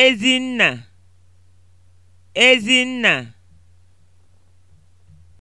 Ezinna Ezinna